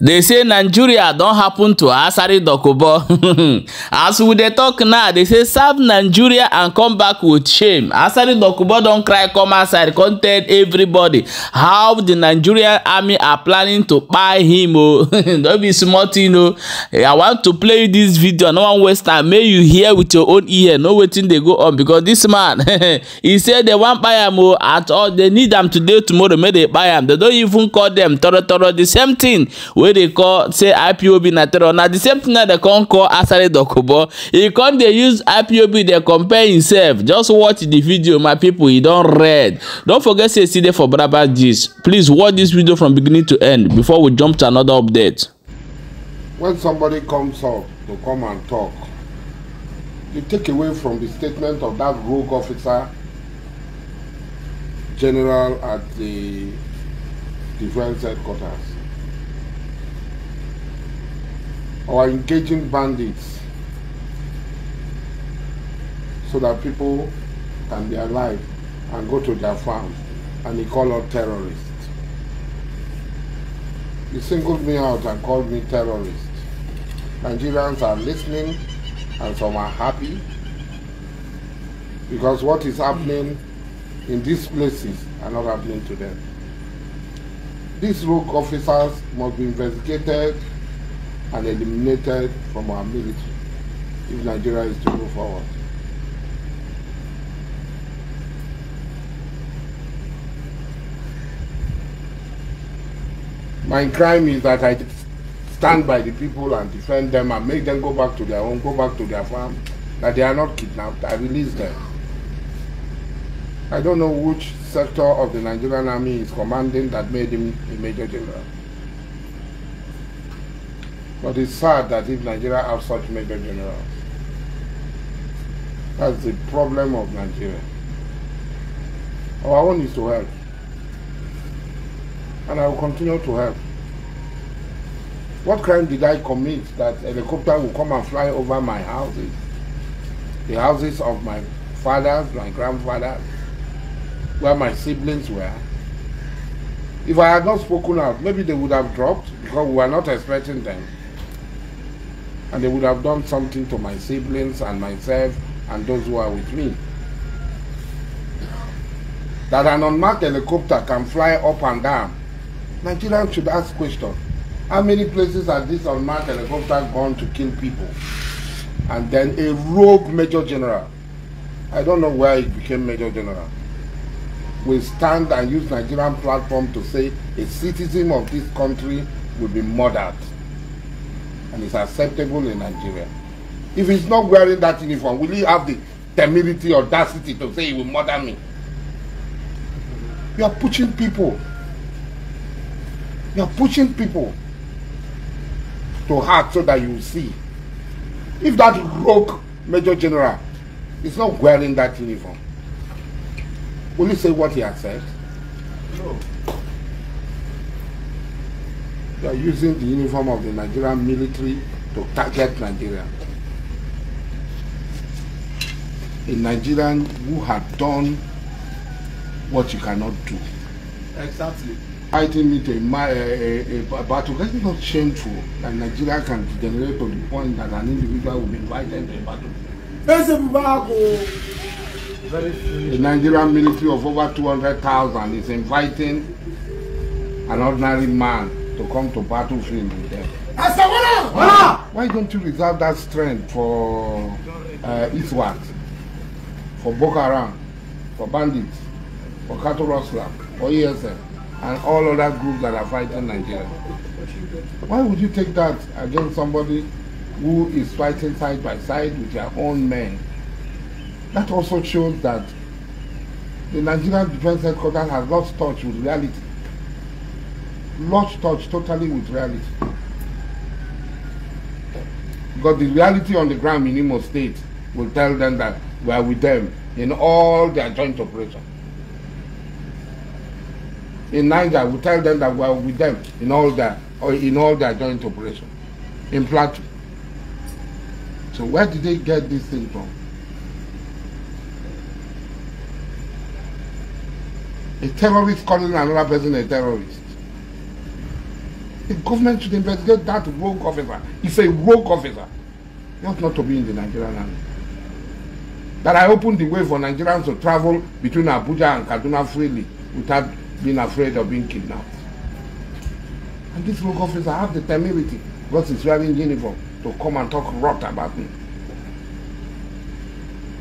they say nigeria don happen to asari dokubo as we dey talk now they say serve nigeria and come back with shame asari dokubo don cry come outside come tell everybody how the nigerian army are planning to kpai him o oh. no be small thing o oh. i want to play you this video no wan waste time make you hear with your own ear know wetin dey go on because this man he say they wan kpai am o oh, at all they need am today tomorrow make they kpai am they don even call them toro toro the same thing wey wey dey call say ipob na terror na the same thing na dem come call asare dokubo e come dey use ipob dey compare himself just watch the video my people e don red don forget say e still dey for braba gist please watch this video from beginning to end before we jump to another update. when somebody comes up to come and talk you take away from the statement of that rogue officer general at the defense headquarters or engaging bandits so that people can be alive and go to their farms and he called out terrorists. He singled me out and called me terrorist. Nigerians are listening and some are happy because what is happening in these places are not happening to them. These rogue officers must be investigated and eliminated from our military if Nigeria is to move forward. My crime is that I stand by the people and defend them and make them go back to their home, go back to their farm, that they are not kidnapped. I release them. I don't know which sector of the Nigerian army is commanding that made him a major general. But it's sad that if Nigeria has such major generals, that's the problem of Nigeria. Our own is to help. And I will continue to help. What crime did I commit that helicopter will come and fly over my houses? The houses of my fathers, my grandfathers, where my siblings were. If I had not spoken out, maybe they would have dropped because we were not expecting them and they would have done something to my siblings and myself and those who are with me. That an unmarked helicopter can fly up and down. Nigerians should ask questions. How many places has this unmarked helicopter gone to kill people? And then a rogue major general. I don't know where he became major general. Will stand and use Nigerian platform to say a citizen of this country will be murdered. and it's acceptable in Nigeria. If he's not wearing that uniform, will he have the temerity, or audacity to say he will murder me? You are pushing people. You are pushing people to heart so that you see. If that rogue Major General is not wearing that uniform, will he say what he has said? No. They are using the uniform of the Nigerian military to target Nigeria. A Nigerian who had done what you cannot do. Exactly. Fighting me to a, a, a, a battle, that's not shameful that Nigeria can degenerate to the point that an individual will be invited to a battle. The Nigerian military of over 200,000 is inviting an ordinary man to come to battlefield with them. Asawala! Wala! Why don't you reserve that strength for uh, Eastward, for Boko Haram, for bandits, for cattle rustler, for ESM, and all other groups that are fighting Nigeria? Why would you take that against somebody who is fighting side by side with their own men? That also shows that the Nigerian Defense Headquarters has lost touch with reality lost touch totally with reality. Because the reality on the ground in Imo State will tell them that we are with them in all their joint operation In Niger, we tell them that we are with them in all their or in all their joint operation. In Plateau. So where did they get this thing from? A terrorist calling another person a terrorist. The government should investigate that rogue officer. He's a rogue officer. He ought not to be in the Nigerian army. That I opened the way for Nigerians to travel between Abuja and Kaduna freely without being afraid of being kidnapped. And this rogue officer have the temerity, because he's wearing uniform, to come and talk rot about me.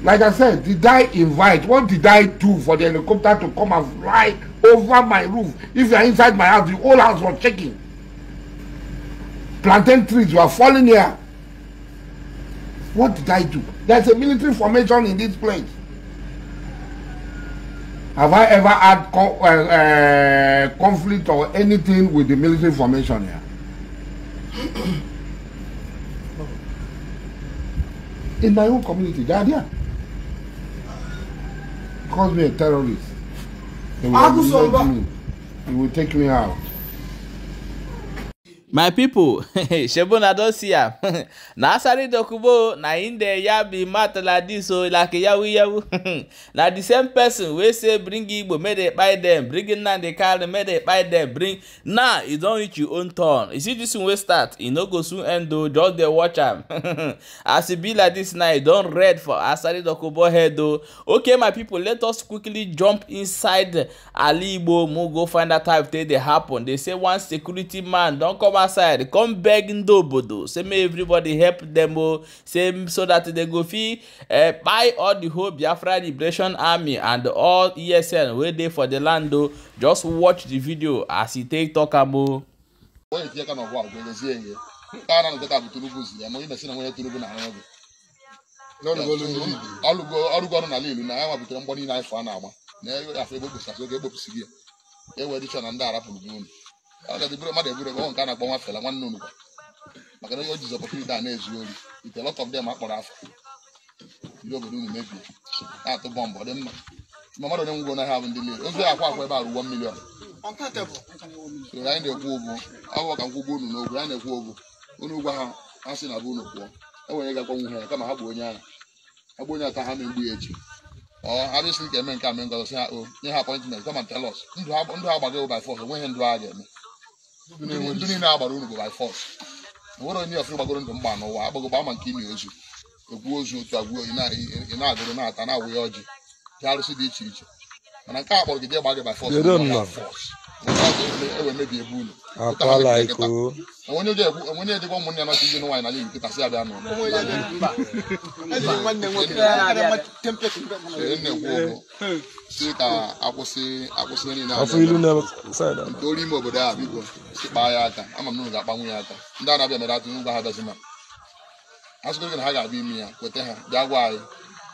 Like I said, did I invite? What did I do for the helicopter to come and fly over my roof? If you're inside my house, the whole house was shaking plantain trees were falling here. What did I do? There's a military formation in this place. Have I ever had co uh, uh, conflict or anything with the military formation here? in my own community, they are there. Calls me a terrorist. They will, they will take me out my pipo na don see am na asari dokubo na im dey ya be matter like dis o oh, like yawu yawu na the same person wey say bring igbo make dey kpai dem bring nnamdi kanu make dey kpai dem bring now e don reach your own turn you see dis one wey start e no go soon end o oh, just dey watch am as e be like dis now e don red for asari dokubo head o oh. okay my pipo let us quickly jump inside ali igbo mo go find out how e take dey happen they say one security man don come come outside come beg ndị obodo say make everybody help dem o oh. say so that they go fit eh, buy all the whole biafra liberation army and all esn wey dey for the land o oh. just watch the video as e take talk am o. onye tinye ka n'ọgwụ agwụ elezie ihe nke a na-anọte ka bụ turubu zi ya ma onye na-esi na nwunye turubu na ahụ ọgụ ọrụgo ọrụ n'ala ilu na ya nwabutere mgbọ niile anyị fọ a na-agba na afọ ebe kpụsasị oge ekpopụsiri ya ewere ịchọ agadi mmadụ nke na-akpọ nwa nwanne unu maka na o jizi a na-ezu ori ite lot of them akpọrọ afọ ndị obodo unu mebie na-atụ bọmbụ ọ dị mma ma mmadụ onye nwụgo naghị abụ ndị mmiri ozu akwa akwa ebe a ruwo milion anyị na-ekwu ụgwọ ọgwụ ka nkwụgwọ unu n'ogwu anyị na-ekwu ụgwọ unu ụgwọ ha ha sị na bụ unu enwere ga-agbanwe ha kama ha bụ onye bụ onye ata ha na-egbu ya echi ọ eme a mee ngọzọ oh, ndụ ha ga-eme ndị niile agbara unu go by force nwere onye ọfụrụ gbagoro ndụ mgba n'ụwa agbagogba ama nke imi ozu egwu ozu otu agwuo ị na-agụrụ na-ata na-awụghị ọjị dị arụsị dị iche iche mana nke a kpọrọ gị jee gba gị by force akwala iko onye ga-edebe ụmụnne ya nọchi ụmụnne nwaanyị n'ala nkịta si ka ime obodo a na ga-akpanwu ya aka ndị a na-abịa mere na gị ha ga-abịa ime ya kweta ha bịa gwa anyị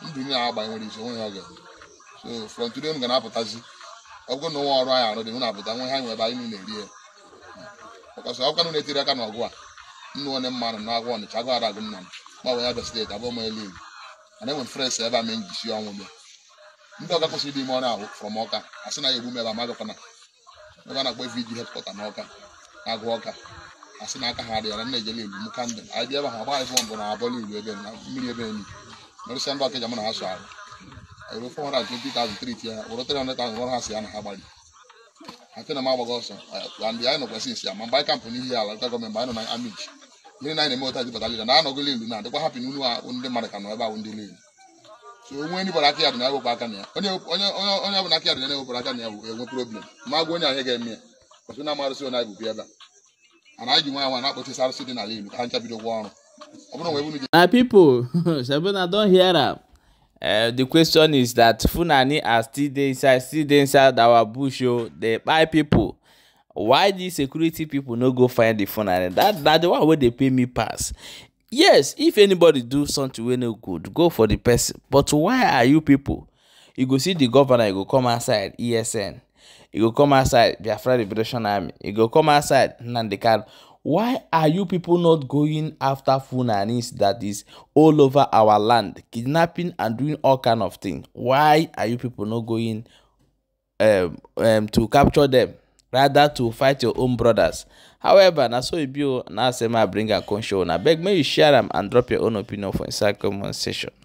ndụ a agba nwere isi onwe ha oge so ga na-apụtazi ọgụ na ụwa ọrụ anyị arụ dị hụ na pụta nwe ha ebe anyị niile rie ọkasị ọkwa nụ na-etiri aka n'ọgụ a nnu onye mmanụ na agwa ọnịcha agụ ara agụ nna m gbanwe ya bịa steeti abụọ m elu igbo mana enwe frens ebe a ma njisi ọnwụ bịa ndị ọga kwụsịrị dị ime ọrụ ahụ m ọka a sị na ya egbu m ebe a magakwana ebe a na-akpọ vidi e na ọka ọka a sị na aka ha dịghara nna ejele m anyị bịa ebe ha ebe na mmiri ebe ndị ọka eji na ha arụ ewere 420,000 tie ya were 300,000 rụrụ ya na ha gbali atena m agbago ọsọ andị anyị nọkwa sinsi ya ma kampụ n'ihi ala nọ na amiji gịnị na eme na anọgịla na adịkwa hapụ n'unu ndị ka nọ ebe ahụ ndị lilu so na a problem a na ha Eh, the question is that Funani are still dey inside still dey inside our bush o oh, dey kpai people why the security people no go find the Funani? that na the one wey dey pay me pass yes if anybody do something wey no good go for the person but why are you people you go see the governor you go come outside ESN you go come outside Biafra Liberation Army you go come outside Nnamdi Kanu Why are you people not going after funanis that is all over our land, kidnapping and doing all kind of things? Why are you people not going um, um, to capture them rather to fight your own brothers? However, na so e be o, na asema bring am come show una. Abeg make you share am and drop your own opinion for inside comment section.